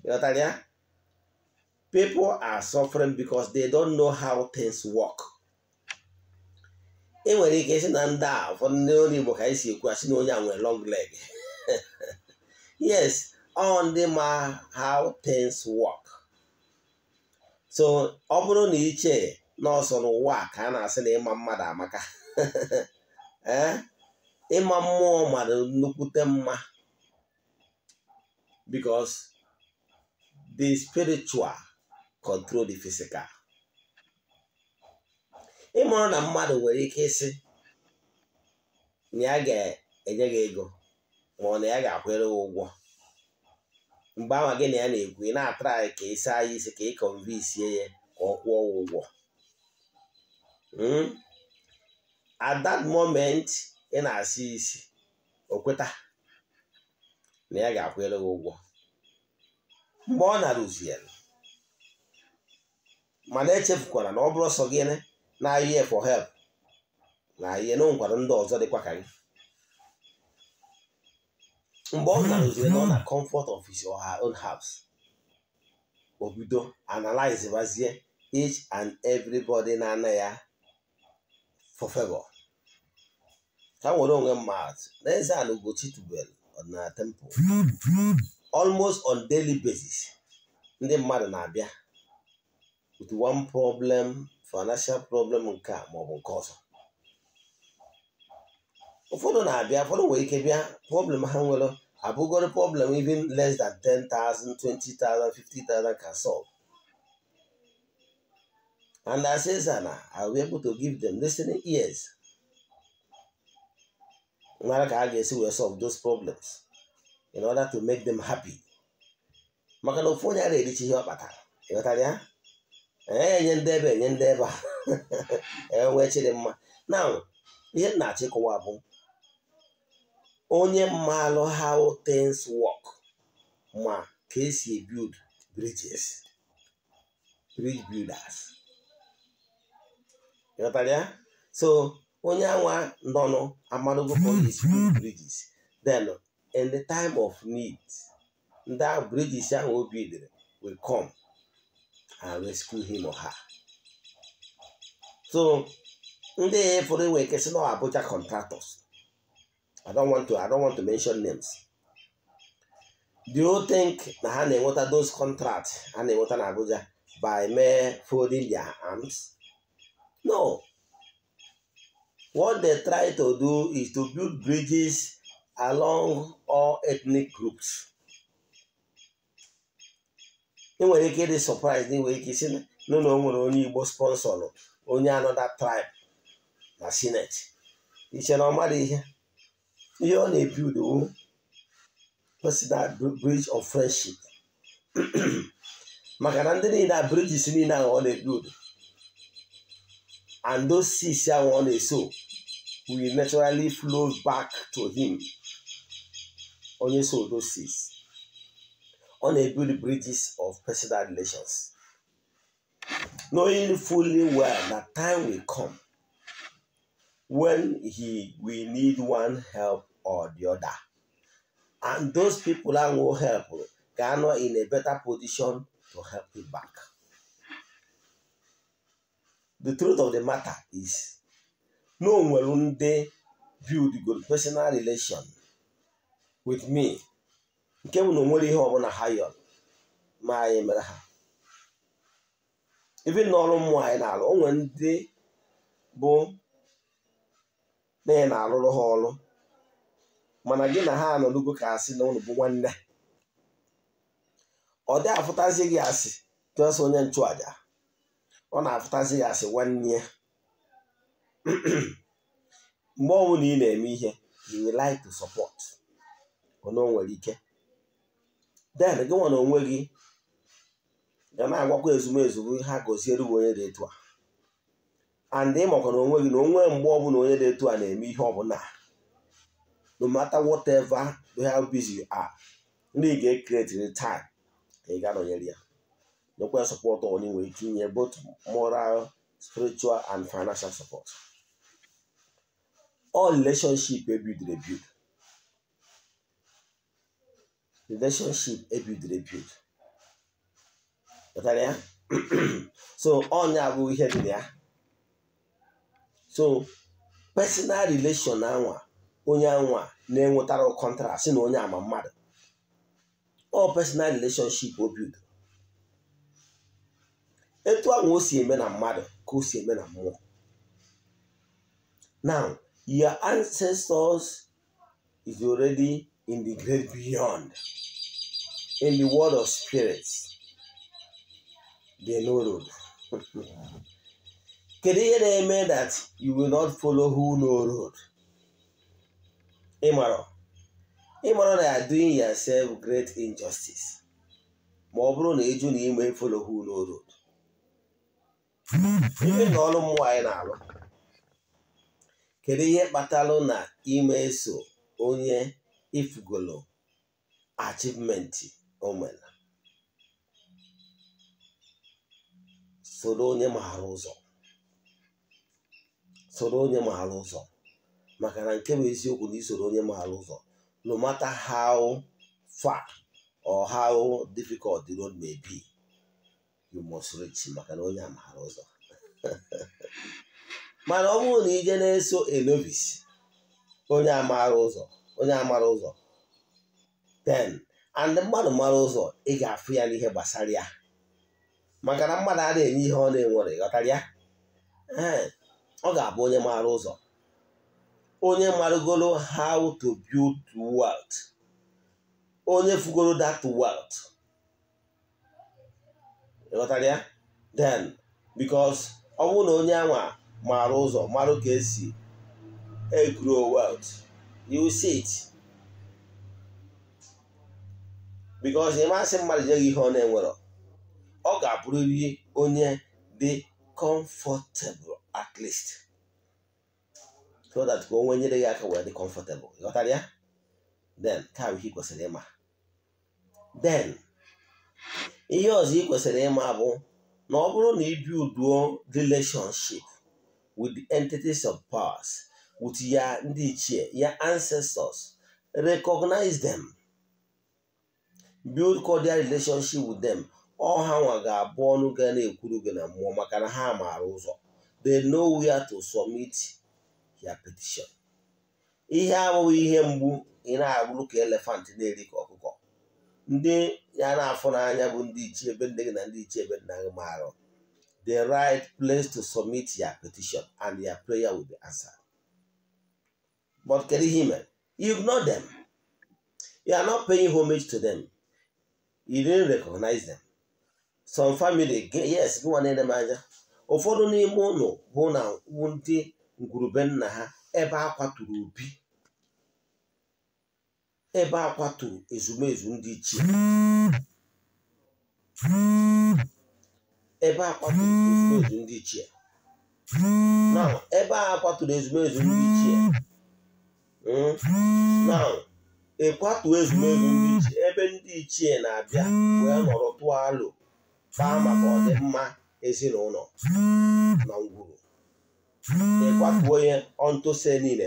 m *laughs* people are suffering because they don't know how things work. e nwere ike isi na ndị a ụfọdụ ndị onye Igbo ka anyị si ekwu asị na onye a nwere long leg *laughs* yes ọ ndị ma how things work so ọ bụrụ na iche n'ọsọ n'ụwa ka a na-asị na ịma mmadụ amaka *laughs* ee eh? ịma mmụọ mara nnukwute mma because the spiritual control the physical ịmụrụ na mmadụ nwere ike ịsị na ya ga-enye gị ego ma ọ na ya ga-akwụrụ ụgwọ mgbe ahụ gị na ya na-ekwu ị na-atara anyị ka ịsa anyị isi ka ị kọnvinsie ya ka ọ kwụọ ụgwọ hmm? at that moment ị na-asị isi okweta na ya ga akwụele gị ụgwọ mgbe ọ na-arụzi ya mana echefukwara na ọ bụrụ sọ gịnị na-ayị for help na ihe na nkwado ndị ọzọ dịkwa ka gị mgbe ọ na-arụzi na ọ na comfort of his or her own house o bido analyze bazie each and everybody na-ana ya for favor ka nwere onwe m ma atụ n'eze ala Ugochi tubelu ọdịnala temple almost on daily basis ndị mmadụ na-abịa with one problem financial problem nke a maọbụ nke ọzọ ụfọdụ na-abịa ụfọdụ nwere ike bịa problem ha nwere abụgoro problem even less than 10,000 20,000 50,000 can solve and as eze na I will be able to give them listening ears mara ka a ga-esi wee solve those problems in order to make them happy maka na ofu onye a na-erichi ihe ọ kpatara ịghọtara ya enye ndị ebe enye ndị ebe a *laughs* enwee chịrị mma na ihe m na-achọ ịkọwa bụ onye mmalụ how things work ma ka esi ebuild bridges bridge builders ịghọtara ya so onye anwa nọnụ amadogo police build bridges then in the time of need ndị bridges ahụ o bidoro will come and rescue him or her. so ndị fụrụ wee kesị na Abuja contractors I don't want to I don't want to mention names do you think na ha na-enweta those contracts ha na-enweta na Abuja by mere folding their arms no What they try to do is to build bridges along all ethnic groups. ị nwere ike ịdị surprise na inwere ike isi nụ na o nwere onye Igbo sponsor onye anoda tribe na senate. iche na ọmara ihe ihe ọ na-ebi udowu personal bridge of friendship *clears throat* maka na ndị niile a bridges niile ahụ ọ na-ebi udo and those seeds that one they sow will naturally flow back to him. Only so those seeds. On a build bridges of personal relations. Knowing fully well that time will come when he we need one help or the other. And those people that will help, they in a better position to help him back. the truth of the matter is na o nwere ndị build good personal relation with me nke bụ na onwere ihe ọbụla ha yọrọ ma anyị mere ha ebe n'ọrụ mmụọ anyị na-arụ o ndị bụ na ị na-arụrụ ha ọrụ mana gị na ha anọdugo ka asị na ụlọ bụ nwanne ọ dị afụtazi gị asị tụọsị onye nchụaja ọ na-afụtazi ya asị nwanne ya mgbe ọbụla ị na-eme ihe you will like to support ona nwere ike den gị nwa onwe gị ga na-agwakwa ezumezu ha goziere bụ onye dị etu a and ịmakwa na onwe gị na onwe mgbe ọbụla onye dị etu a na-eme ihe ọbụla no matter whatever how busy you are ndị ga-ekreti time ka ị ga nọnyere ya local support ọ na-enwe itinye both moral spiritual and financial support all relationship ebido ebido relationship ebido ebido pụtara ya so ọnya bụ ihe dị ya so personal relation na anwa onye anwa na-enwetara kọntrakt si na onye ama mmadụ ọ personal relationship o e bido etu ahụ o eme na mmadụ ka o eme na mmụọ now your ancestors is already in the great beyond in the world of spirits they know road *laughs* kedu ihe na-eme that you will not follow who no road ịmara ịmara na ya doing yourself great injustice ma ọ bụrụ na ịjụ na ime follow who no road ime na ọrụ mmụọ anyị na-alụ kedu ihe kpatalụ na ime eso onye ifugolo achivmenti o nwere soro onye maara ụzọ maka na nke bụ eziokwu na isoro onye maara ụzọ no matter how far or how difficult the road may be you must maka na onye amaghara ụzọ *laughs* mana ọ bụrụ na ije na-eso enovis onye amaghara ụzọ onye amara ụzọ then and mmadụ mara ụzọ ị ga-afụ ya n'ihe gbasara ya maka na mmadụ a na-enye ihe ọ na-enwere ghọtara ya ọ ga-abụ onye maara ụzọ onye marụgoro how to build wealth onye fugoro that wealth ịghọtara then because ọ bụrụ na onye anwa maara ụzọ maara ka esi grow wealth you see it because ịmasị mmadụ nyeghị ihe ọ na-enwero ọ ga-abụrịrị onye dị comfortable at least so that ka onwe nyere ya aka wee dị comfortable ịghọtara ya then ka ihe kwesịrị ịma then ihe ọzọ ị kwesịrị ịma bụ na ọ bụrụ na ibi uduo relationship with the entities of powers with ya ndị ichie ya ancestors recognize them build cordial relationship with them ọha nwa ga-abụ ọnụ ga na-ekwuru gị na mmụọ maka na ha maara ụzọ they know where to submit your petition ihe abụghị ihe mgbu ị na-agụrụ ka elefant na-eri ka ọkụkọ ndị ya na-afụ n'anya bụ ndị ichie ebe nne gị na ndị ichie ebe nna gị marụ the right place to submit your petition and your prayer will be answered but kedu ihe mere you ignore them you are not paying homage to them you didn't recognize them some family yes gị nwa na m anya ụfọdụ n'ime ụlọ hụ na ndị ngwurube nna ha ebe a kwaturu obi ebe a kwaturu ezumezu ndị ichie ebe a kwaturu ezumezu ndị ichie ebe a ezumezu ndị ichie hmm? na ịkwatu ezumezu ndị ichie ebe ndị ichie na-abịa wee nọrọ tụọ alụ baa maka ọdịmma ezinụlọ na ngwuru ịkwatuo onye ọntụse niile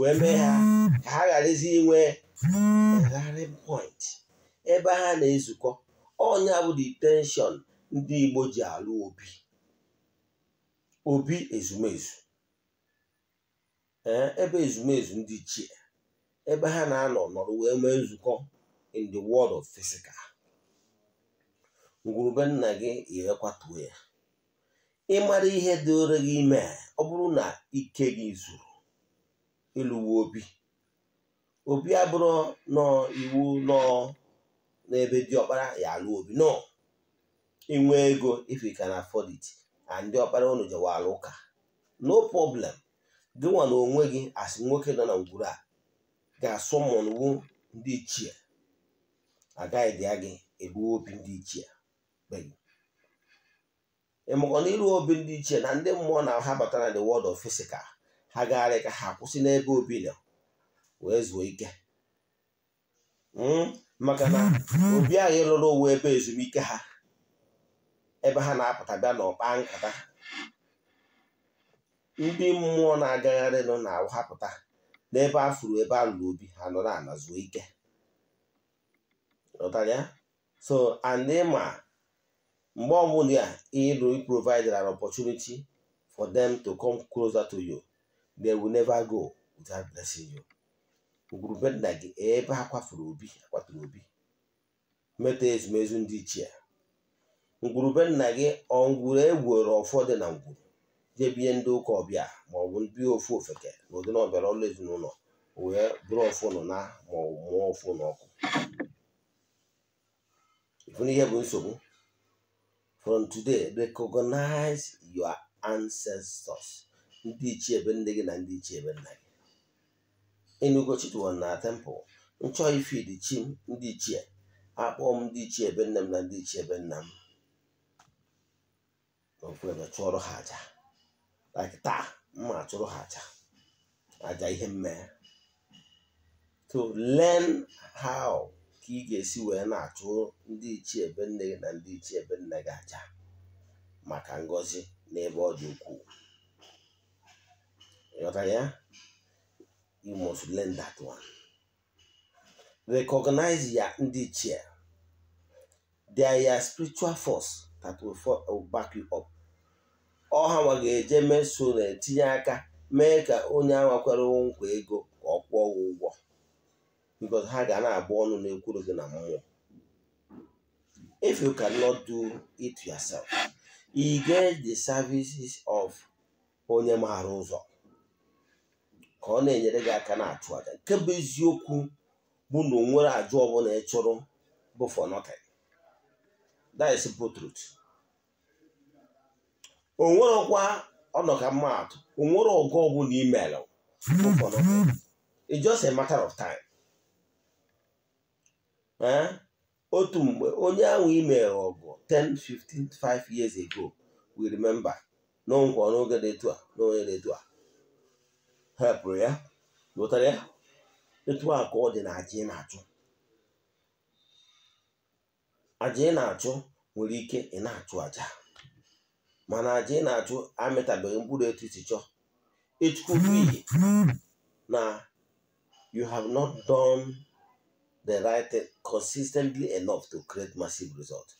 wee mee ha ka ha gharazi inwe rallying point ebe ha na-ezukọ ọnya bụ detenshọn ndị Igbo ji alụ obi obi ezumezu ebe ezumezu ndị ichie ebe ha na-anọ nọrọ wee mee nzukọ in the world of physical ngwurube nna gị irekwatuo ya ịmara ihe dịore gị ime ọ bụrụ na ike gị zuru ịlụwo obi obi abụrụ nọ iwu nọ n'ebe diọkpara ya alụ obi nọ inwe ego if you can afford it and ndị ọkpara unu jewalụ ụka no problem nwa na onwe gị asị nwoke nọ na ngwuru a ga-asụ mụnwu ndị ichie agaghị dị ya gị ebu obi ndị ichie ịmụkọ na iru obi ndị ichie na ndị mmụọ na ha batara the world of physical ha gagharị ka ha kwụsị n'ebe obi nọ wee zuo ike hmm? maka na obi anyị lụrụ uwe ebe ezumike ha ebe ha na-apụta bịa n'ọkpa nkata ndị mmụọ na-agagharị nọ na awụhapụta n'ebe a ebe a lụrụ obi ha nọ ala zuo ike so and ma mgbe ọbụla ịlụ provide an opportunity for them to come closer to you they will never go without blessing you ugwurube nna gị ebe ha kwafuru obi akwaturu obi Meta ezumezu ndị ichie ngwurube nna gị ọngwuru egwuoro ụfọdụ na ngwuru jebinye ndị ụka ọbịa ma ọ bụ ndị ofu ofeke na ụdị na ọbịara ọlụ ezinụlọ wee bụrụ ofu nọ na ma ọ mụọ ofu n'ọkụ ifu n'ihe bụ nsogbu from today recognize your ancestors ndị ichie ebe nne gị na ndị ichie ebe nna gị enugo tempụl nchọ ifid chi m ndị ichie akpọ m ndị ichie ebe nne m na ndị ichie ebe nna m n'okwebe chụọrọ ha aja taa mma achụrụ ha aja aja ihe mmanya. to learn how ka ị ga-esi wee na-achụ ndị ichie ebe nne gị na ndị ichie ebe nna gị aja maka ngọzi n'ebe ọ dị ukwuu ọtaya you must learn that one recognize ya ndị ichie they are your spiritual force that will, for, will back you up ọha nwa ga-eje meso na-etinye aka mee ka onye anwakwere nkwa ego ka ọ kwụọ ụgwọ because ha ga na-abụ ọnụ na-ekwuru gị na mmụọ if you cannot do it yourself you get the services of onye maara ụzọ ka ọ na-enyere gị aka na-achụ aja nke bụ eziokwu bụ na onwere ajụ ọbụla ị chụrụ bụ for nothing that is simple truth onwerọkwa ọnọka mmadụ onwere ọgụ ọbụla email bụ for nothing it's just a matter of time eh? otu mgbe onye ahụ email ọgụ 10 15 5 years ago we remember n'ọgwụ n'oge dị etu a n'onye dị etu a hepụrụ ya lụtara ya etu a ka ọ dị na aja ị na-achụ aja ị na-achụ nwere ike ị na-achụ aja mana aja ị na-achụ amịtabeghị mkpụrụ etu isi chọọ ịchụkwu iyi na you have not done the right consistently enough to create massive result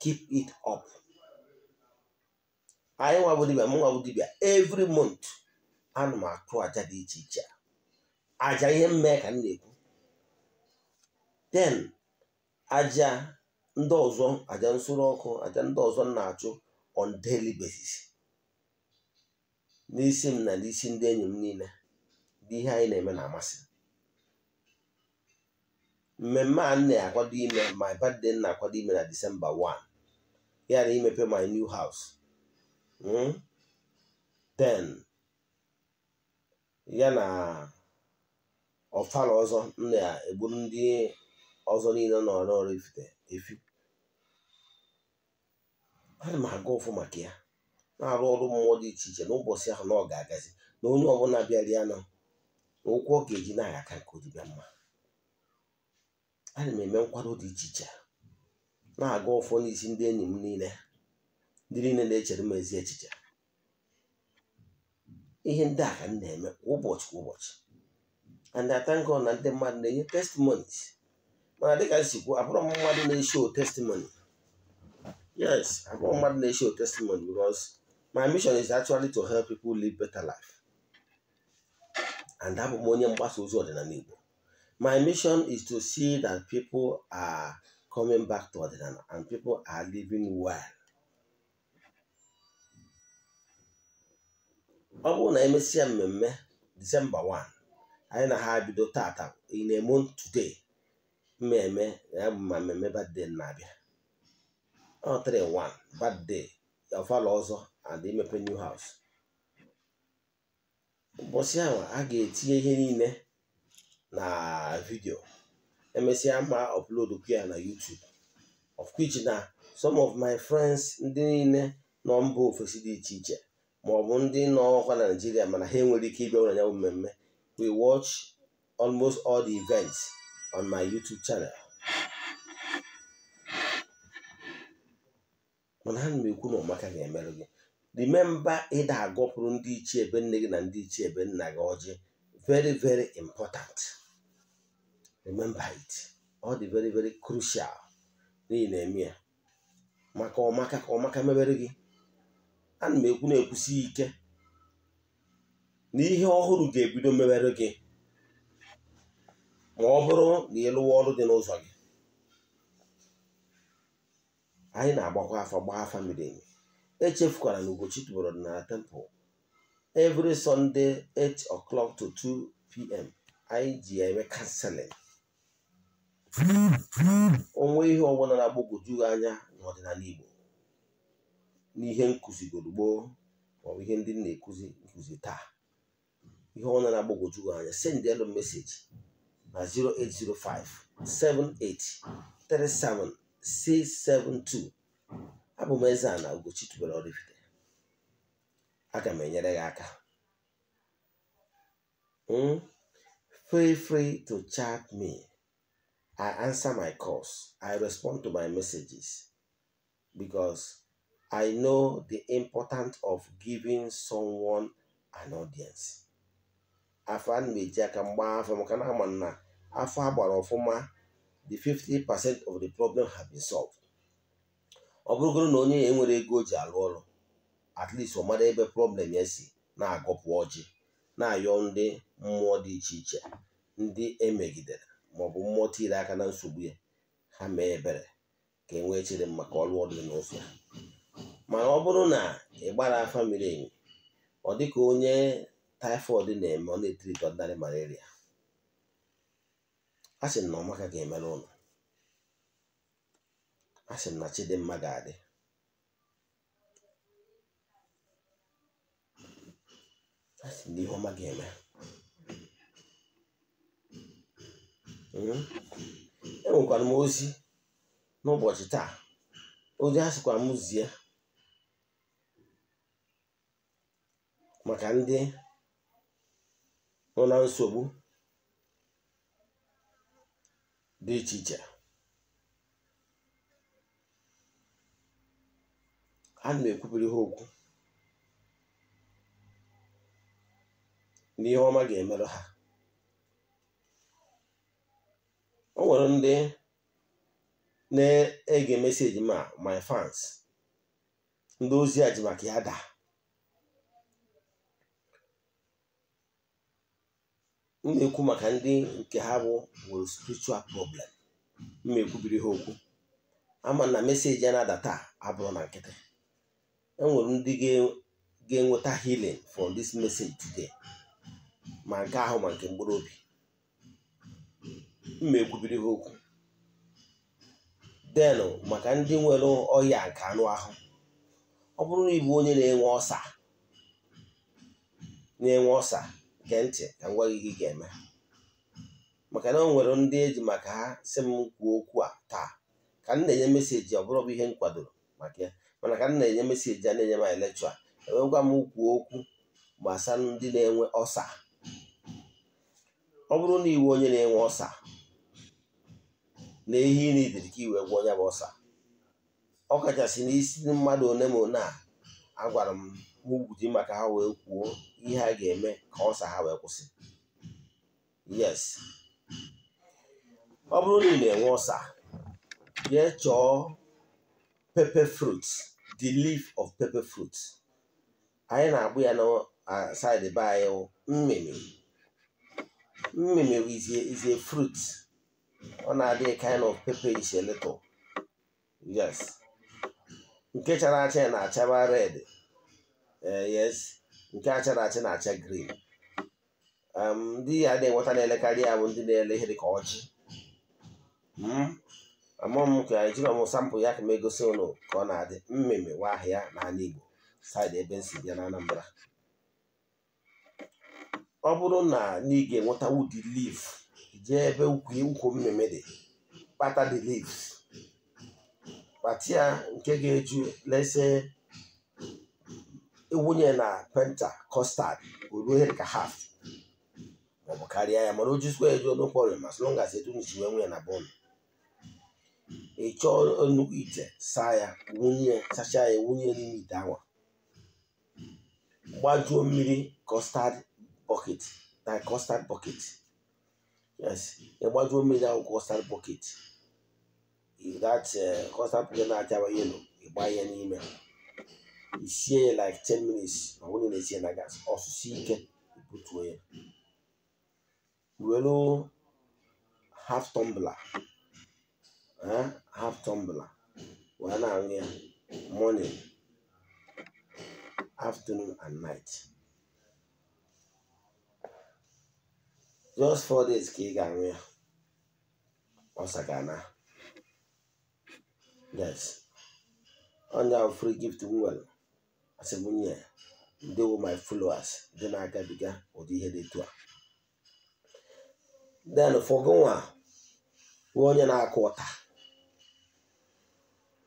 keep it up anyị nwa dibia m nwa dibia every month anụ m achụ aja dị iche iche aja ihe mmee ka m na-ekwu den aja ndị ọzọ aja nsuru ọkụ aja ndị ọzọ m na-achụ on daily basis n'isi m na n'isi ndị enyi m niile dị ihe anyị na-eme na-amasị mmemme a na-akwado ime my birthday na-akwado ime na December 1 ya na imepe my new house hmm? then ya na ọfala ọzọ na-egbu ndị ọzọ niile nọ n'ọrụ efi ana m aga ụfụ maka ya na-arụ ọrụ mmụọ dị iche iche n'ụbọchị ahụ na ọ ga-agazi na onye ọbụla bịara na ụkwụ ọ ga-eji na-aga aka nke odibịa mma ana m eme nkwado dị iche iche na-aga ụfụ n'isi ndị enyi m niile ndị niile na-echere m ezi echiche ihe ndị a ka m na-eme ụbọchị kwa ụbọchị and I thank God na ndị mmadụ na-enye testimonies mana dịka m si kwuo abụrụ m mmadụ na-esho testimony yes abụrụ m mmadụ na-esho testimony because my mission is actually to help people live better life and abụ m onye mgbasa ozi ọdịnala Igbo my mission is to see that people are coming back to ọdịnala and people are living well ọ bụrụ na emesịa mmemme disemba 1 anyị na ha bido tata ị na-eme today mmemme ya bụ ma mmemme birthday na-abịa ọ 31 birthday ọfala ọzọ and imepe new house ụbọchị ahụ a ga-etinye ihe niile na vidio emesịa ma upload ya na YouTube of which na some of my friends ndị niile nọ mba ofesi dị iche iche ma ọ bụ ndị nọ ọkwa na mana ha enwere ike ịbịa ụlọ ya mmemme we watch almost all the events on my YouTube channel mana ha na-ekwu na ọmaka ga-emerụ gị remember ịda agọpụrụ ndị ichie ebe nne gị na ndị ichie ebe nna gị ọjị very very important remember it ọ dị very very crucial n'ihi na-eme ya maka ọmaka ka ọmaka mebere gị ana m ekwu na-ekwusi ike n'ihe ọhụrụ ga-ebido mewere gị ma ọ bụrụ na ị ọrụ dị n'ụzọ gị anyị na-agbakwa afọ gbaa afa miri emi echefukwara na Ugochi tụbọrọ na temple every Sunday 8 o'clock to 2 pm anyị ji eme kanseling onwe ihe ọbụla na anya n'ọdịnala Igbo n'ihe ma ọ maọbụ ihe ndị na-ekuzi nkụzi taa ihe ọ na-agbagwoju anya send elu meseji na 0805 7837 672 abụ m eze a na Ugochi tubelu Oraifite aga m enyere gị aka hmm? free free to chat me I answer my calls I respond to my messages because I know the importance of giving someone an audience. afọ a na-eji aka mgba afọ maka na ama na afọ a gbara ọfụma the 50 percent of the problem have been solved. ọ bụrụgoro na onye ya enwere ego ji alụ ọrụ at least ọ mara ebe problem ya si na-agọpụ ọjị na-ayọ ndị mmụọ dị iche iche ndị emegidere maọbụ mmụọ tiri aka na nsogbu ya ha mee ebere ka e nwee chere maka ọrụ ọdịnala n'ofe mana ọ bụrụ na ị gbara afa miri emi ọ dịka onye taịfọdụ na-eme ọ na etiri ọdịnarị malaria a sị na ọmaka ga-emere ụlọ a sị na chidimma ga-adị a sị na ihe ọma ga-eme hmm? enwekwara m ozi n'ụbọchị taa ozi a sịkwa m zie maka ndị nọ na nsogbu dị iche iche a na ekwupụrụ ha okwu n'ihe ọma ga-emerụ ha o nwere ndị na-ege meseji ma my fans ndị ozi a ji maka ya daa m na-ekwu maka ndị nke ha bụ nwere spiritual problem m na-ekwubiri ha okwu ama na meseji a na-adata abụrụ na nkịtị enwere ndị ga-enweta healing for this message today ma nke ahụ ma nke mkpụrụ obi m na-ekwubiri ha okwu den maka ndị nwere ọhịa nke anụ ahụ ọ bụrụ na ịbụ onye na-enwe ọsa na gee ntị ka m gwa gị ga-eme maka na o nwere ndị eji maka ha si m kwuo okwu a taa ka m na-enye meseji ọ bụrụ bụ ihe m kwadoro maka mana ka m na-enye meseji a na-enye m elekchọ a gwa e m kwuo okwu gbasara ndị na-enwe ọsa ọ bụrụ na iwe onye na-enwe ọsa na ehi iri ka iwe gwa onye bụ ọsa ọ kachasị n'isi mmadụ one ma one a agwara m ugwu dị maka ha wee kwuo ihe a ga-eme ka ọsa ha wee kwụsị yes ọ bụrụ na ị na-enwe ọsa ya chọọ pepper fruit the leaf of pepper fruit anyị na-agbụ ya na side be anyị mmịmị mmịmị is a fruit ọ na-adị kind of pepperish a little yes nke chara acha na achaba red Eh, yes nke a chara acha na-acha grin um, ndị ya na-enweta na-elekarị ya bụ ndị na-ele ihe dịka ọjị hmm? amụọ m ka ejiri ọmụ sampụl ya ka m egosi ụnụ ka ọ na-adị mmemme nwa ahịa n'ala Igbo saịdị ebe nsi bịa na Anambra ọ bụrụ na ị ga-enweta wudi lif jee ebe ukwu mmemme dị kpata the leaves kpata ya nke ga-eju lesee ịwụnye na penta kọstad oruo ihe dịka haf maọbụ karịa ya mana o jizikwa eji ọnụ kpọrọ ma sịrị ngazi etu nji wee na bọọlụ ị chọọ nnukwu ite saa ya wunye sachaa ya wunye n'ime ite awa gbajuo mmiri kọstad bọket na kọstad bọket yes gbajuo mmiri ahụ kọstad bọket that kọstad eh, bọket na-acha yelo ịgba ya n'ime isie see like 10 minutes na-esi ya na gas ọsụsụ ike butuo ya welu half tumbler half tumbler wee na-aṅụ ya morning afternoon and night just four days ka ị ga ya yes onye ahụ free gift nwere asị m nye ndewo my followers ndị na-agabiga ụdị ihe dị etu a den fọgụnwa nwee onye na-akụ ọta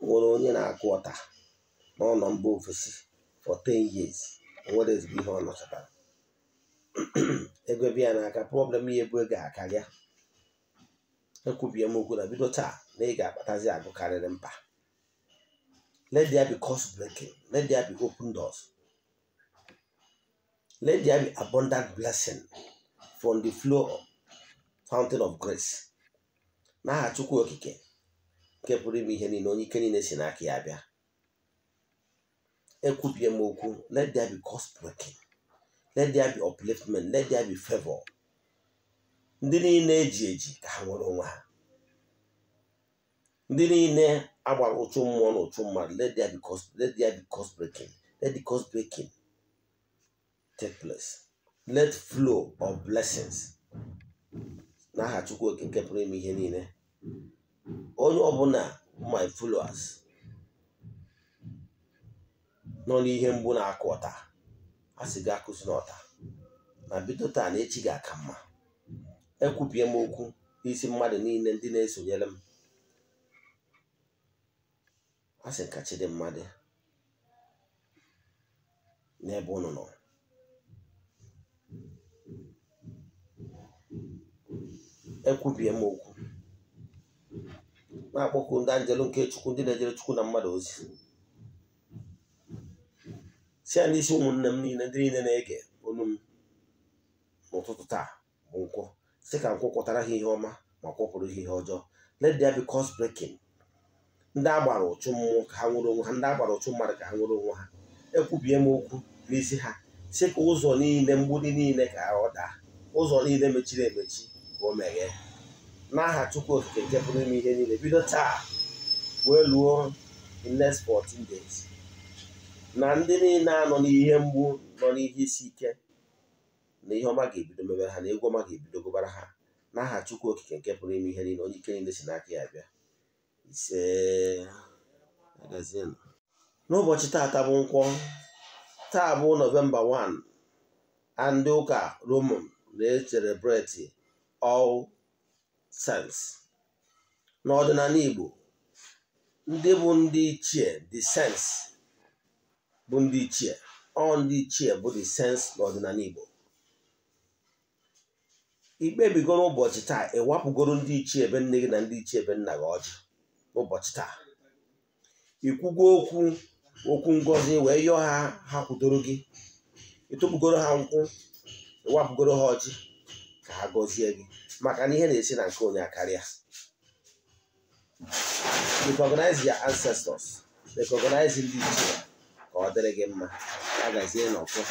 nwere onye na-akụ ọta n'ụlọ mba ofesi for 10 years nwere ezigbo ihe ọ nọchara *clears throat* ego ebe ya n'aka problem ya ebu ego akarịa ekwubie m okwu na bido taa na ị ga-akpatazi agụ karịrị mba Let there be cause breaking. Let there be open doors. Let there be abundant blessing from the flow fountain of grace. N'aha Chukwu Okike nke pụrụ ime ihe niile onye ike niile si n'aka ya bịa. Ekwubie m okwu, let there be cause breaking. Let there be upliftment. Let there be favor. Ndị niile eji eji ka ha nwere onwe ha. ndị niile agbara ụchụ mmụọ na ụchụ mmadụ let there be cause let there be breaking let the breaking take place let flow of blessings n'aha Chukwu nke pụrụ ime ihe niile onye ọbụla my followers nọ n'ihe mgbu na-akụ ọta a sị gị akụzi n'ọta na bido taa na echi ga-aka mma ekwupie m okwu n'isi mmadụ niile ndị na-esonyere m a sị ka dị dị n'ebe unu nọ ekwubie m okwu na-akpọku ndị anjelu nke chukwu ndị na-ejere chukwu na mmadụ ozi si ya n'isi ụmụnne m niile ndị niile na-ege onu m n'ụtụtụ taa bụ nkwụ si ka nkwụ kpọtara ha ihe ọma ma kwụpụrụ ha ihe ọjọọ let there be cause ndị agbara ụchụ mmụọ ka ha nwere onwe ha ndị agbara ụchụ mmadụ ka ha nwere onwe ha ekwubie m okwu n'isi ha si ka ụzọ niile mgbidi niile ka ọ daa ụzọ niile mechiri emechi ka o meghee n'aha Chukwu Okike nke ime ihe niile bido taa wee luo the next 14 days na ndị niile anọ n'ihe mgbu nọ n'ihe isi ike na ihe ọma ga-ebido mebere ha na egwu ọma ga-ebido gụbara ha n'aha Chukwu Okike nke pụrụ ime ihe niile onye ike niile si n'aka ya bịa ise agazienụ n'ụbọchị taata bụ nkwọ taa bụ nọvemba 1 a ndị ụka roman na-eserebreti all sens n'ọdịnala igbo ndị bụ ndị ichie the saints bụ ndị ichie ọ ndị ichie bụ the saints n'ọdịnala igbo ikpebigoro ụbọchị taa ịwapụgoro ndị ichie ebe nne gị na ndị ichie ebe nna gị ọjị ụbọchị taa ikwugo okwu okwu ngozi wee yọọ ha ha kwudoro gị ịtụpụgoro ha nkwụ ịwapụgoro ha ọjị ka ha gọzie gị maka na ihe na-esi na nke onye karịa recognize your ancestors recognize ndị ichie ka ọ dịrị gị mma agazie n'ọkụ